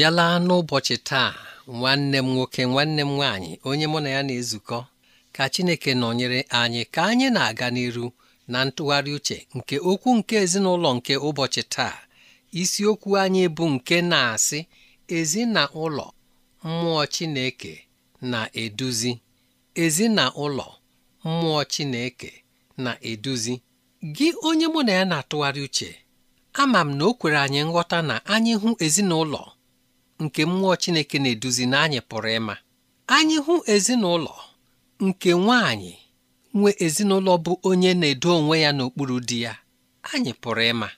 bịala n'ụbọchị taa nwanne m nwoke nwanne m nwaanyị onye mụ na ya na-ezukọ ka Chineke nọnyere anyị ka anyị na-aga n'iru na ntụgharị uche nke okwu nke ezinụlọ nke ụbọchị taa isiokwu anyị bụ nke na-asị ezinụlọ mmụọ Chineke na-eduzi ezinụlọ mmụọ Chineke na-eduzi gị onye mụ na ya na-atụgharị uche ama m na o kwere anyị nghọta na anyị hụ ezinụlọ nke mmụọ Chineke na-eduzi na anyị pụrụ ịma anyị hụ ezinụlọ nke nwaanyị nwe ezinụlọ bụ onye na-edo onwe ya n'okpuru di ya anyị pụrụ ịma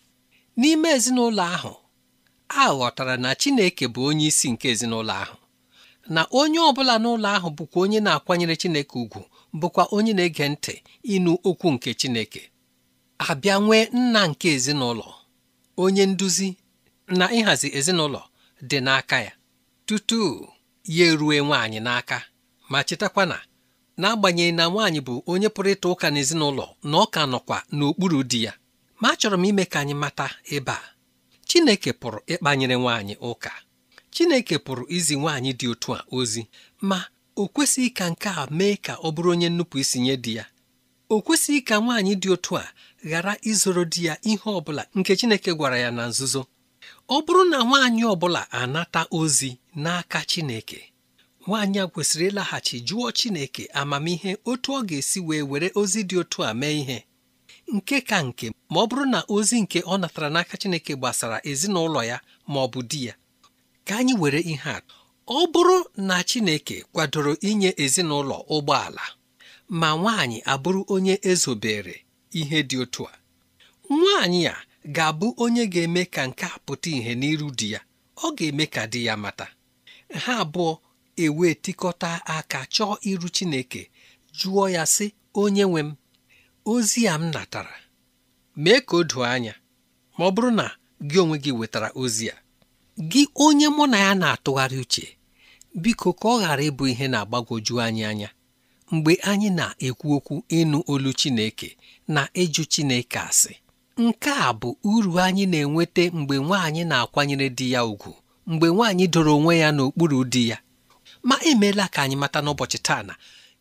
n'ime ezinụlọ ahụ a ghọtara na Chineke bụ onye isi nke ezinụlọ ahụ na onye ọbụla n'ụlọ ahụ bụkwa onye na-akwanyere Chineke ugwu bụkwa onye na-ege ntị ịnụ okwu nke Chineke abịa nwee nna nke ezinụlọ onye nduzi na ịhazi ezinụlọ dị n'aka ya tutu ya erue nwaanyị n'aka ma chetakwa na n'agbanyeghị na nwaanyị bụ onye pụrụ ịta ụka n'ezinụlọ na ọ ka nọkwa n'okpuru di ya ma achọrọ m ime ka anyị mata ebe a Chineke pụrụ ịkpanyere nwaanyị ụka Chineke pụrụ izi nwaanyị dị otu a ozi ma o kwesịghị ka nke a mee ka ọ bụrụ onye nnupụ isi nye di ya o kwesịghị ka nwaanyị dị otu a ghara izoro di ya ihe ọ bụla nke Chineke gwara ya na nzuzo ọ bụrụ na nwaanyị ọbụla anata ozi n'aka Chineke nwaanyị a kwesịrị ịlaghachi jụọ Chineke amamihe otu ọ ga-esi wee were ozi dị otu a mee ihe nke ka nke ma ọ bụrụ na ozi nke ọ natara n'aka Chineke gbasara ezinụlọ ya ma ọ bụ di ya ka anyị were ihe atụ ọ bụrụ na Chineke kwadoro inye ezinụlọ ụgbọala ma nwaanyị abụrụ onye ezobere ihe dị otu a nwaanyị a ga-abụ onye ga-eme ka nke a pụta ìhè n'iru di ya ọ ga-eme ka di ya mata ha abụọ ewee tikọta aka chọọ iru Chineke jụọ ya sị onye nwe m ozi a m natara mee ka o doo anya ma ọ bụrụ na gị onwe gị wetara ozi a gị onye mụ na ya na-atụgharị uche biko ka ọ ghara ịbụ ihe na-agbagwoju anyị anya mgbe anyị na-ekwu okwu ịnụ olu Chineke na ịjụ Chineke asị nke a bụ uru anyị na-enweta mgbe nwaanyị na-akwanyere di ya ùgwù mgbe nwaanyị doro onwe ya n'okpuru di ya ma emeela ka anyị mata n'ụbọchị taa na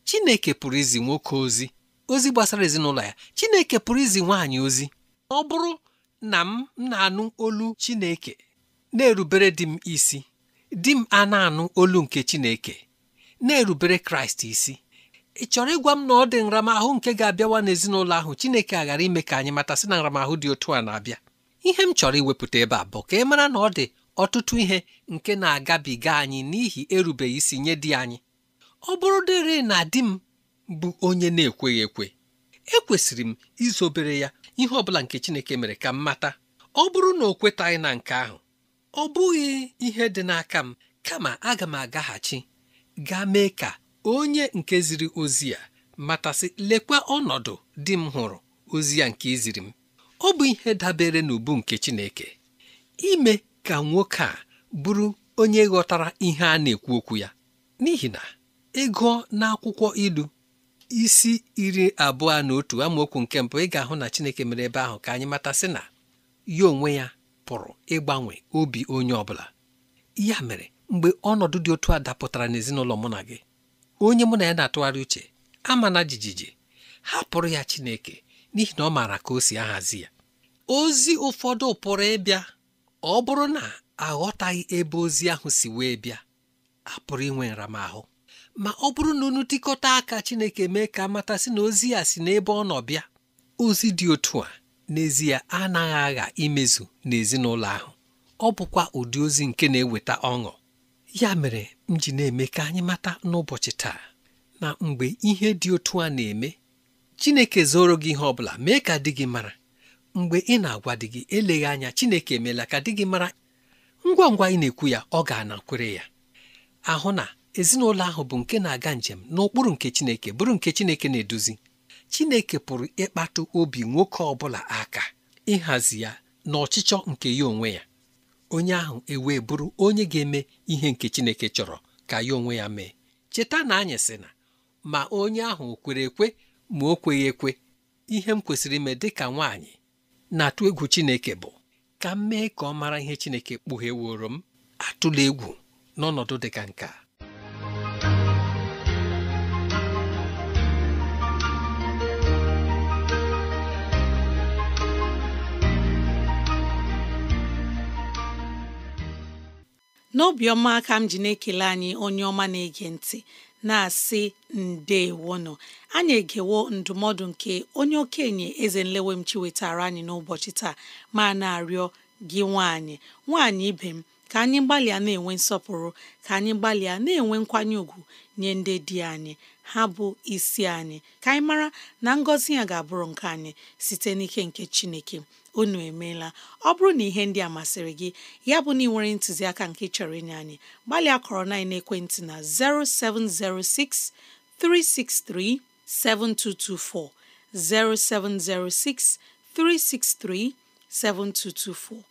Chineke pụrụ izi nwoke ozi ozi gbasara ezinụlọ ya Chineke pụrụ izi nwaanyị ozi ọ bụrụ na m na-anụ olu Chineke na-erubere di m isi di m a na-anụ olu nke Chineke na-erubere Kraịst isi ị chọrọ ịgwa m na ọ dị nramahụ nke ga-abịawa n'ezinụlọ ahụ Chineke ghara ime ka anyị matasị na nramahụ dị otu a na-abịa ihe m chọrọ iwepụta ebe a bụ ka ị mara na ọ dị ọtụtụ ihe nke na-agabiga anyị n'ihi erubeghị isi nye di anyị ọ bụrụ dịrị na di m bụ onye na-ekweghị ekwe ekwesịrị m izobere ya ihe ọ bụla nke Chineke mere ka m mata ọ bụrụ na o kwetaghị na nke ahụ ọ bụghị ihe dị n'aka m kama aga m agaghachi gaa mee ka onye nke ziri ozi ya matasị lekwa ọnọdụ di m hụrụ ozi ya nke iziri m ọ bụ ihe dabere n'ubu nke Chineke ime ka nwoke a bụrụ onye ghọtara ihe a na-ekwu okwu ya n'ihi na ịgụọ n'akwụkwọ ilu isi iri abụọ na otu amaokwu nke mbụ ị ga-ahụ na Chineke mere ebe ahụ ka anyị matasị na ya onwe ya pụrụ ịgbanwe obi onye ọ bụla ya mere mgbe ọnọdụ dị otu a dapụtara n'ezinụlọ mụ na gị onye mụ na ya na-atụgharị uche ama na jijiji hapụrụ ya Chineke n'ihi na ọ maara ka o si ahazi ya ozi ụfọdụ pụrụ ịbịa ọ bụrụ na aghọtaghị ebe ozi ahụ si wee bịa a pụrụ inwe nramahụ ma ọ bụrụ na unu dịkọta aka Chineke mee ka amatasị na ozi ya si n'ebe ọ nọ bịa ozi dị otu a n'ezie anaghị agha imezu n'ezinụlọ ahụ ọ bụkwa ụdị ozi nke na-eweta ọṅụ ya mere m ji na-eme ka anyị mata n'ụbọchị taa na mgbe ihe dị otu a na-eme Chineke zoro gị ihe ọ bụla mee ka di gị mara mgbe ị na-agwa di gị eleghị anya Chineke emeela ka di gị mara ngwa ngwa ị na-ekwu ya ọ ga-anakwere ya ahụ na ezinụlọ ahụ bụ nke na-aga njem n'ụkpụrụ nke Chineke bụrụ nke Chineke na-eduzi Chineke pụrụ ịkpatụ obi nwoke ọ bụla aka ịhazi ya na ọchịchọ nke ya onwe ya onye ahụ ewee bụrụ onye ga-eme ihe nke Chineke chọrọ ka ya onwe ya mee cheta na anyị sị na ma onye ahụ kwere ekwe ma o kweghị ekwe ihe m kwesịrị ime dị ka nwaanyị na-atụ egwu Chineke bụ ka m mee ka ọ mara ihe Chineke kpughe woro m atụla egwu n'ọnọdụ dị ka nke a n'obiọma ka m ji na-ekele anyị onye ọma na-ege ntị na-asị nọ anyị egewo ndụmọdụ nke onye okenye eze nlewe m chiwetara anyị n'ụbọchị taa ma na-arịọ gị nwaanyị nwaanyị ibe m ka anyị gbalịa na-enwe nsọpụrụ ka anyị gbalịa na-enwe nkwanye ùgwù nye ndị di anyị ha bụ isi anyị ka anyị mara na ngọzi ya ga-abụrụ nke anyị site n'ike nke chineke unu emeela ọ bụrụ na ihe ndị a masịrị gị ya bụ na ị nwere ntụziaka nke chọrọ inye anyị gbalịa kọrọ na ekwentị na 0706 363 7224 0706 363 7224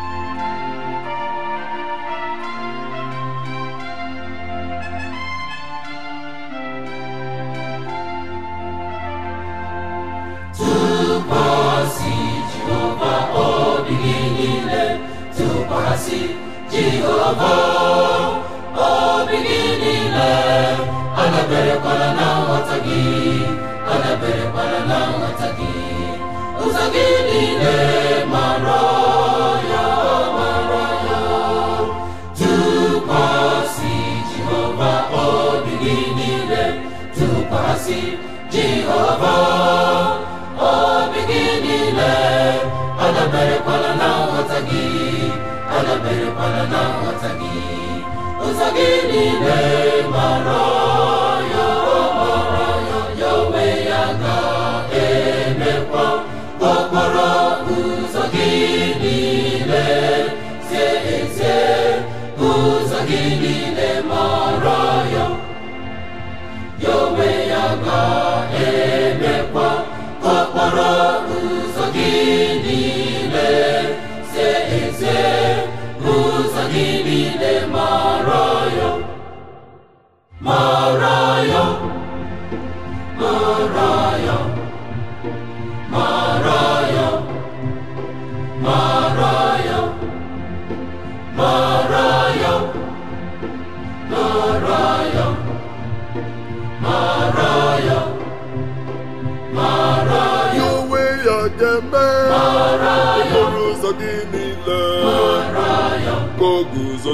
gọzi jehova obi gị niile adaberekwala na nghọta gị adaberekwala na nghọta gị ụzọ gị niile mara ndị niile mara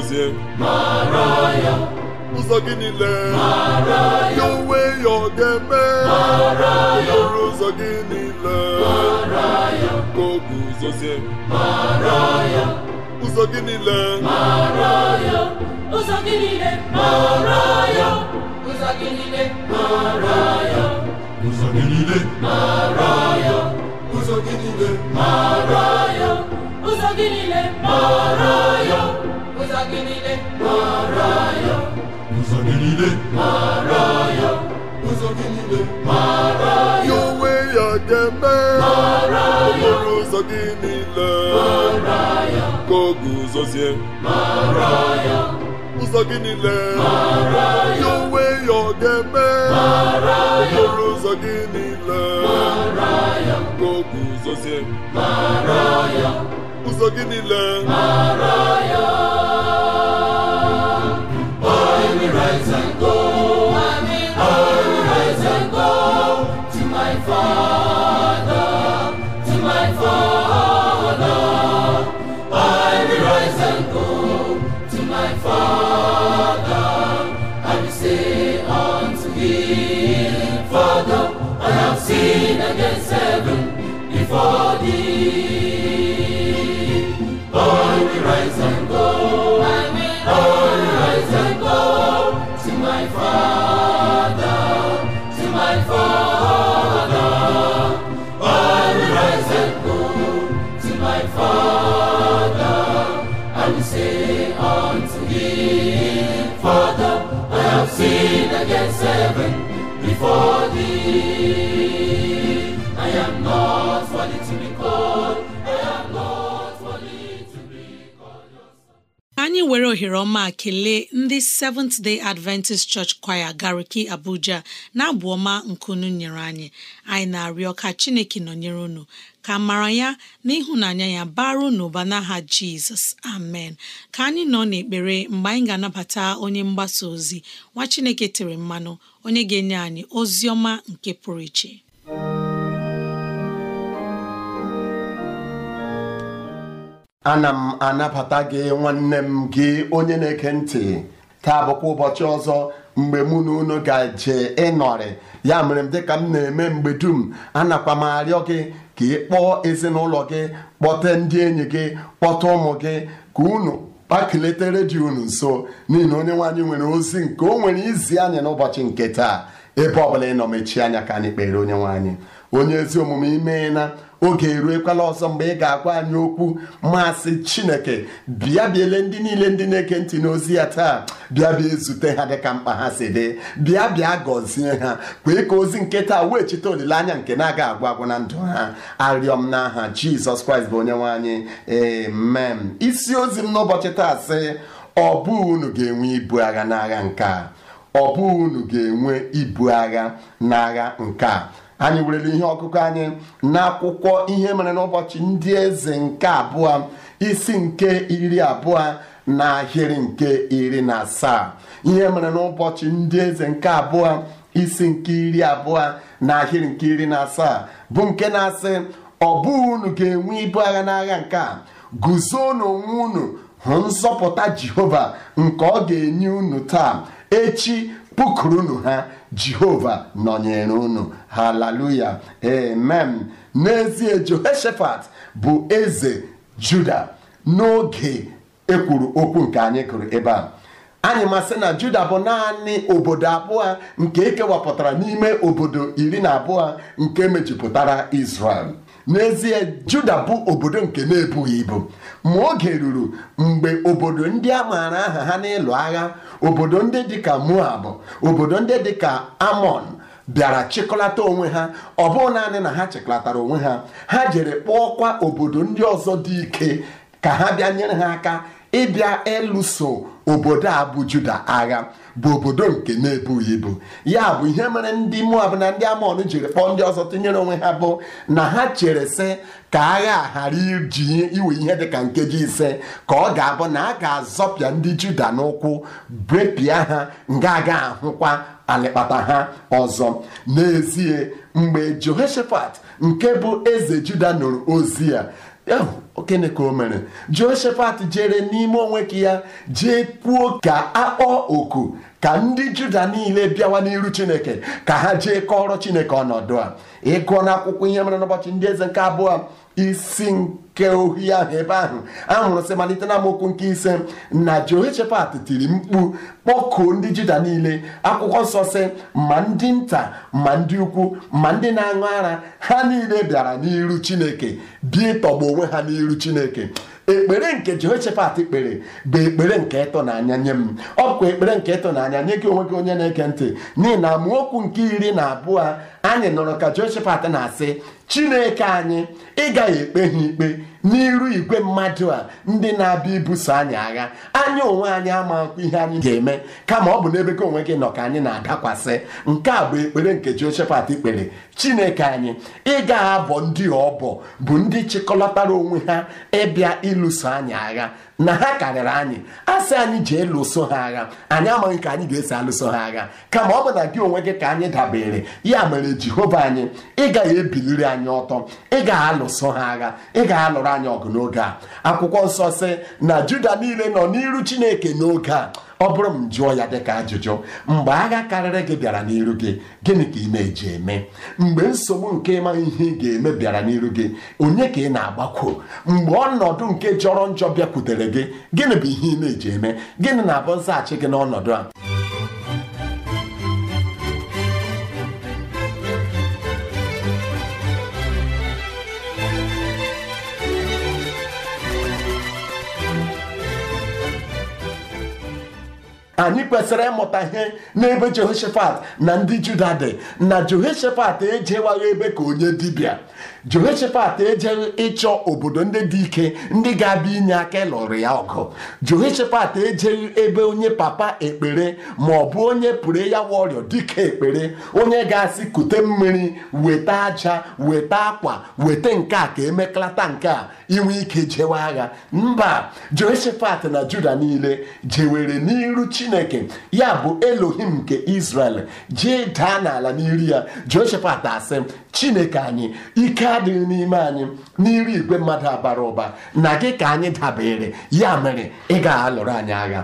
gọzie ụzọ gị niile ya onwe ya ọ ga-eme ọrụ ụzọ gị niile ka o guzozie ụzọ gị niile ụzọ gị niile ụzọ gị niile ụzọ gị niile ụzọ gị niile ụzọ gị niile gị niile mara ya ụzọ gị niile mara ya ụzọ gị niile mara ya onwe ya ga-eme ya okporo ụzọ gị niile mara ya ka ọ guzozie mara ya ụzọ gị niile mara ya onwe ya ọ ya okporo ụzọ gị niile mara ya ka ọ guzozie mara ya ụzọ gị niile mara ya nzikọ anyị were ohere ọma kelee ndị Seventh Day Adventist Church Choir Gariki Abuja na-abụ ọma nkunu nyere anyị anyị na-arịọ ka Chineke nọnyere unu ka mara ya na ịhụnanya ya bara unu ụba n'aha Jizọs amen ka anyị nọ n'ekpere mgbe anyị ga-anabata onye mgbasa ozi nwa Chineke tere mmanụ onye ga-enye anyị ozi ọma nke pụrụ iche ana m anabata gị nwanne m gị onye na-eke ntị taa bụkwa ụbọchị ọzọ mgbe mụ na unu ga-eje ịnọrị ya mere m dịka m na-eme mgbe dum anakwa m arịọ gị ka ị kpọọ ezinụlọ gị kpọta ndị enyi gị kpọta ụmụ gị ka unu kpakeleta redio unu nso n'ihi na onye nwaanyị nwere ozi nke o nwere izi anyị n'ụbọchị nke taa ebe ọbụla ị nọ mechie anya ka anyị kpere onye nwaanyị onye ezi omume imeela oge eruekwala ọzọ mgbe ị ga-agwa anyị okwu masị chineke bịa biele ndị niile ndị na-eke ntị n'ozi ya taa bịa bịa ezute ha dịka mkpa ha si dị bịa bịa gọzie ha kwee ka ozi nke taa wee chite olileanya nke na-aga agwa agwụ na ndụ ha arịọ m n'aha jizọs kraịst bụ onye nwaanyị ee amen isi ozi m n'ụbọchị taa sị ọ bụ unu ga-enwe ibu agha n'agha nke a bụghị unu ga-enwe ibu agha n'agha nke a anyị werele ihe ọkụkọ anyị n'akwụkwọ ihe mere n'ụbọchị ndị eze nke abụọ isi nke iri abụọ na ahịrị nke iri na asaa ihe mere n'ụbọchị ndị eze nke abụọ isi nke iri abụọ na ahịrị nke iri na asaa bụ nke na-asị ọ bụ unu ga-enwe ibu agha n'agha nke a guzo n'onwe unu hụ nzọpụta jehova nke ọ ga-enye unu taa echi pụkụrụnụ ha jehova nọnyere unu haleluya amen n'ezie jehoshaphat bụ eze juda n'oge ekwuru okwu nke anyị kụrụ ebe a anyị masị na juda bụ naanị obodo abụọ nke ekewapụtara n'ime obodo iri na abụọ nke mejupụtara israel n'ezie juda bụ obodo nke na-ebughị ibu ma oge ruru mgbe obodo ndị a maara aha ha n'ịlụ agha obodo ndị dịka moab obodo ndị dịka amon bịara chịkọlata onwe ha ọ bụghị naanị na ha chịkọlatara onwe ha ha jere kpọọkwa obodo ndị ọzọ dị ike ka ha bịa nyere ha aka ịbịa ịlụso obodo a bụ juda agha bụ obodo nke na-ebughị ibu ya bụ ihe mere ndị Moab na ndị Amọn jiri kpọọ ndị ọzọ tinyere onwe ha bụ na ha chere sị ka agha ghara iji iwe ihe dịka nkeji ise ka ọ ga-abụ na a ga-azọpịa ndị Juda n'ụkwụ brepịa ha nga aga ahụkwa alịkpata ha ọzọ n'ezie mgbe Jehoshaphat nke bụ eze Juda nụrụ ozi ya okene ka o mere Jehoshaphat jere n'ime onwe ka ya jee puo ka akpọọ oku ka ndị juda niile bịawa n'iru chineke ka ha jee kọrọ chineke ọnọdụ a ịgụọ akwụkwọ ihe mere n'ụbọchị ndị eze nke abụọ isi nke ohi ahụ ebe ahụ ahụrụ sị malite na amaokwu nke ise na jehoshaphat tiri mkpu kpọkuo ndị juda niile akwụkwọ nsọ sị ma ndị nta ma ndị ukwu ma ndị na-aṅụ ara ha niile bịara n'iru chineke bie ịtọgbu onwe ha n'iru chineke ekpere nke Jehoshaphat kpere bụ ekpere nke ịtụnanya nye m ọ bụkwa ekpere nke ịtụnanya nye gị onwe gị onye na-eke ntị n'ihi na amaokwu nke iri na abụọ anyị nọrọ ka Jehoshaphat na-asị chineke anyị ị gaghị ekpe ha ikpe n'iru igwe mmadụ a ndị na-abịa ibuso anyị agha anya onwe anyị ama ihe anyị ga-eme kama ọ bụ n'ebe gị onwe gị nọ ka anyị na-adakwasị nke a bụ ekpere nke Jehoshafat kpere chineke anyị ị gaghị abọ ndị ọbọ bụ ndị chịkọlọtara onwe ha ịbịa ịlụso anyị agha na ha karịrị anyị asị anyị jee lụso ha agha anyị amaghị ka anyị ga-esi alụso ha agha kama ọ bụ na gị onwe gị ka anyị dabere ya mere jehova anyị ị gaghị ebiliri anyị ọtọ ị gaghị alụso ha agha ị gaghị alụrụ anyị ọgụ n'oge a akwụkwọ nsọ sị na juda niile nọ n'iru chineke n'oge a ọ bụrụ m jụọ ya dịka ajụjụ mgbe agha karịrị gị bịara n'iru gị gịnị ka ị na-eji eme mgbe nsogbu nke ịma ihe ị ga-eme bịara n'iru gị onye ka ị na-agbakwo mgbe ọnọdụ nke jọrọ njọ bịakwutere gị gịnị bụ ihe ị na-eji eme gịnị na-abụ nzaghachi gị n'ọnọdụ a anyị kwesịrị ịmụta ihe n'ebe Jehoshaphat na ndị Juda dị na Jehoshaphat ejewaghị ebe ka onye dibịa Jehoshaphat ejeghị ịchọ obodo ndị dị ike ndị ga-abịa inye aka ịlụrụ ya ọgụ Jehoshaphat ejeghị ebe onye papa ekpere ma ọ bụ onye pụrụ ya wọrịọ dịka ekpere onye ga-asị kute mmiri weta aja weta akwa weta nke a ka emekalata nke a inwe ike jewe agha mba Jehoshaphat na Juda niile jewere n'iru Chineke ya bụ Elohim nke Israel jee daa n'ala n'iri ya Jehoshaphat asị Chineke anyị ike adịghị n'ime anyị n'iru igwe mmadụ abara ụba na gị ka anyị dabere ya mere ị ga-alụrụ anyị agha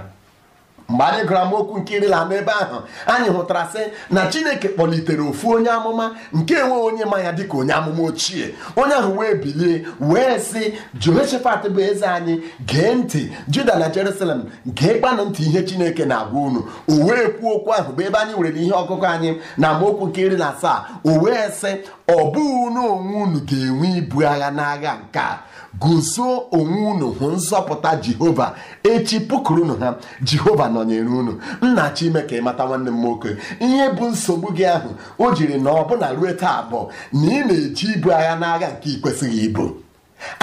mgbe anyị gụrụ amaokwu nke iri na n'ebe ahụ anyị hụtara sị na chineke kpọlitere ofu onye amụma nke enwe onye ma ya dịka onye amụma ochie onye ahụ wee bilie wee sị Jehoshafat bụ eze anyị gee ntị juda na jerusalem gee kpanụ ntị ihe chineke na-agwa unu o wee kwuo okwu ahụ bụ ebe anyị nwere ihe ọkụkụ anyị na amaokwu nke iri na asaa o wee sị ọ bụghị unu onwe unu ga-enwe ibu agha n'agha nke a guzo onwe unu hụ nzọpụta jehova echi pụkụrụnụ ha jehova nọnyere unu nna chime ka ịmata nwanne m nwoke ihe bụ nsogbu gị ahụ o jiri na ọbụna ruo taa abụọ na ị na-eji ibu agha n'agha nke ị ibu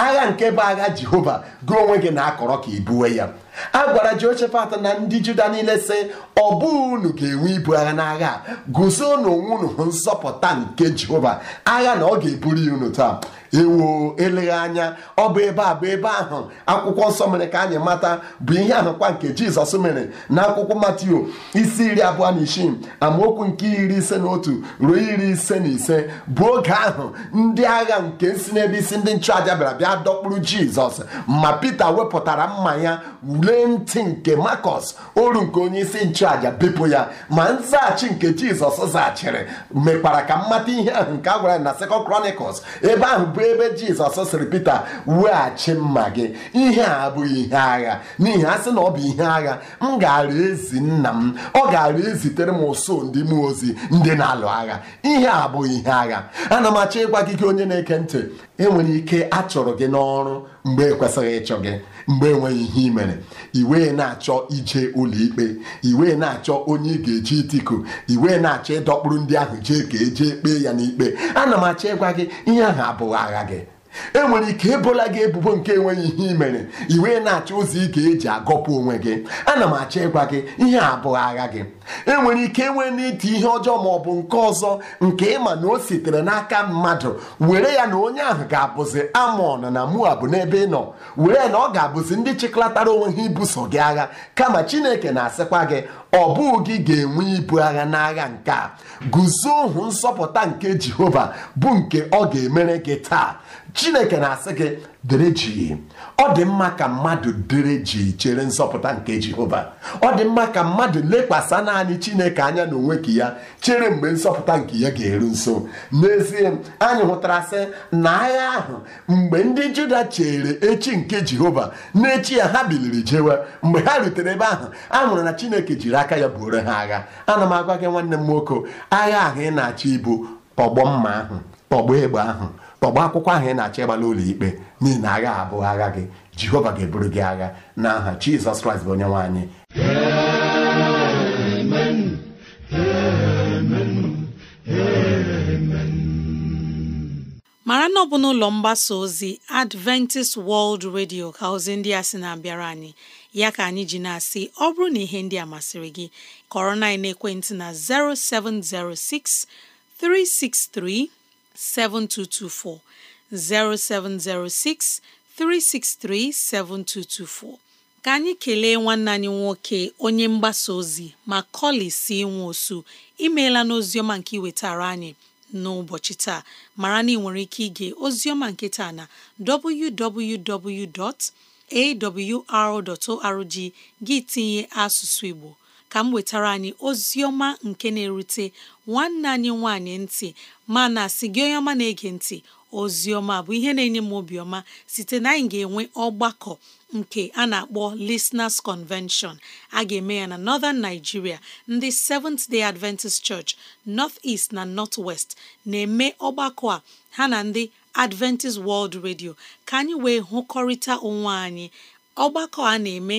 agha nke bụ agha jehova gị onwe gị na-akọrọ ka ibuwe ya a gwara Jehoshafat na ndị Juda niile sị ọ unu ga-enwe ibu agha n'agha guzo n'onwe unu nzọpụta nke Jehova agha na ọ ga-eburu unu taa ewo eleghị anya ọ bụ ebe a bụ ebe ahụ akwụkwọ nsọ mere ka anyị mata bụ ihe ahụkwa nke Jizọs mere na akwụkwọ Matio isi iri abụọ na isii amaokwu nke iri ise na otu ruo iri ise na ise bụ oge ahụ ndị agha nke si n'ebe isi ndị nchụaja bịara bịa dọkpụrụ Jizọs ma Pita wepụtara mma ya ule ntị nke makos oru nke onye isi nchụaja bepụ ya ma nzaghachi nke Jizọs zaghachiri mekwara ka mmata ihe ahụ nke a gwara na Second Chronicles ebe ahụ bụ ebe Jizọs sịrị Pita weghachi mma gị ihe a abụghị ihe agha n'ihi a sị na ọ bụ ihe agha m gara ezi nna m ọ gara ezitere m ụsụ ndị mmụọ ozi ndị na-alụ agha ihe a abụghị ihe agha ana m achọ ịgwa gị gị onye na-eke ntị enwere ike achọrọ gị n'ọrụ mgbe ekwesịghị ịchọ gị mgbe enweghị ihe ị mere iwe na-achọ ije ụlọikpe iwe na-achọ onye ị ga-eji itikọ iwe na-achọ ịdọkpụrụ ndị ahụ jee ka ejee kpee ya n'ikpe ana m achọ ịgwa gị ihe ahụ abụghị agha gị enwere ike ebola gị ebubo nke enweghị ihe i mere iwe na-achọ ụzọ ga eji agọpụ onwe gị ana m achọ ịgwa gị ihe abụghị agha gị enwere ike enwe n'iti ihe ọjọọ ma ọ bụ nke ọzọ nke ịma na o sitere n'aka mmadụ were ya na onye ahụ ga-abụzi amon na moab n'ebe ị nọ were na ọ ga-abụzi ndị chịkọlatara onwe ha ibuso gị agha kama chineke na-asịkwa gị ọ bụghị gị ga-enwe ibu agha n'agha nke a guzo ohu nsọpụta nke jehova bụ nke ọ ga-emere gị taa chineke na-asị gị dere ọ dị mma ka mmadụ dere chere nzọpụta nke jehova ọ dị mma ka mmadụ lekwasị naanị chineke anya na onwe ka ya chere mgbe nzọpụta nke ya ga-eru nso n'ezie anyị hụtara sị na agha ahụ mgbe ndị juda chere echi nke jehova n'echi ya ha biliri jewe mgbe ha rutere ebe ahụ a hụrụ na chineke jiri aka ya buoro ha agha ana m agwa gị nwanne m nwoke agha ahụ ị na-achọ ibu tọgbọ mma ahụ tọgbọ egbe ahụ tọgba akwụkwọ ahụ ị na-achọ ịgba ụlọ ikpe n'ihi na agha abụghị agha gị jehova ga-eburu gị agha n'aha aha jizọs kraịst bụ onye nwe anyị mara na ọ bụ n'ụlọ mgbasa ozi adventist world radio ka ozi ndị a sị na-abịara anyị ya ka anyị ji na-asị ọ bụrụ na ihe ndị a masịrị gị kọrọ na ekwentị na 0706 363 7224 0706 363 7224 ka anyị kelee nwanne anyị nwoke onye mgbasa ozi ma kọli si nwa osu imeela n'oziọma nke iwetara anyị n'ụbọchị taa mara na ị nwere ike ige ozioma nke taa na www.awr.org gị tinye asụsụ Igbo ka m wetara anyị Ozioma nke na-erute nwanne anyị nwanyị ntị mana si gị onye ọma na-ege ntị Ozioma bụ ihe na-enye m obiọma site na anyị ga-enwe ọgbakọ nke a na-akpọ Listeners Convention a ga-eme ya na Northern Nigeria ndị Seventh Day Adventist Church North East na North West na-eme ọgbakọ a ha na ndị Adventist World Radio ka anyị wee hụkọrịta onwe anyị ọgbakọ a na-eme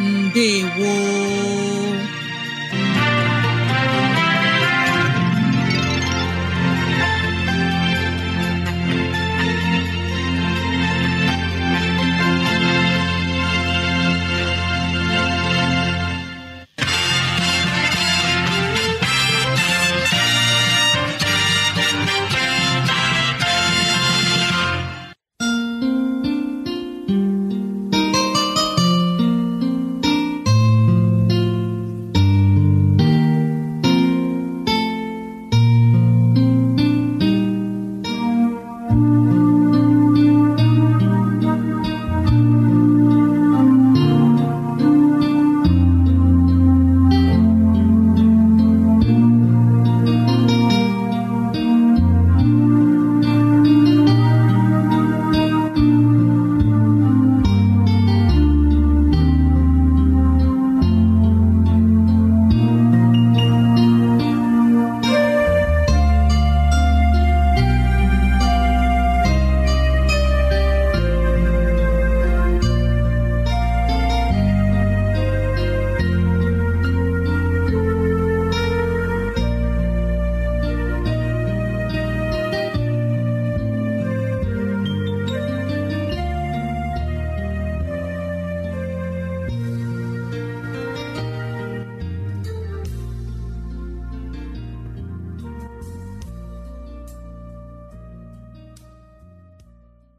ndewo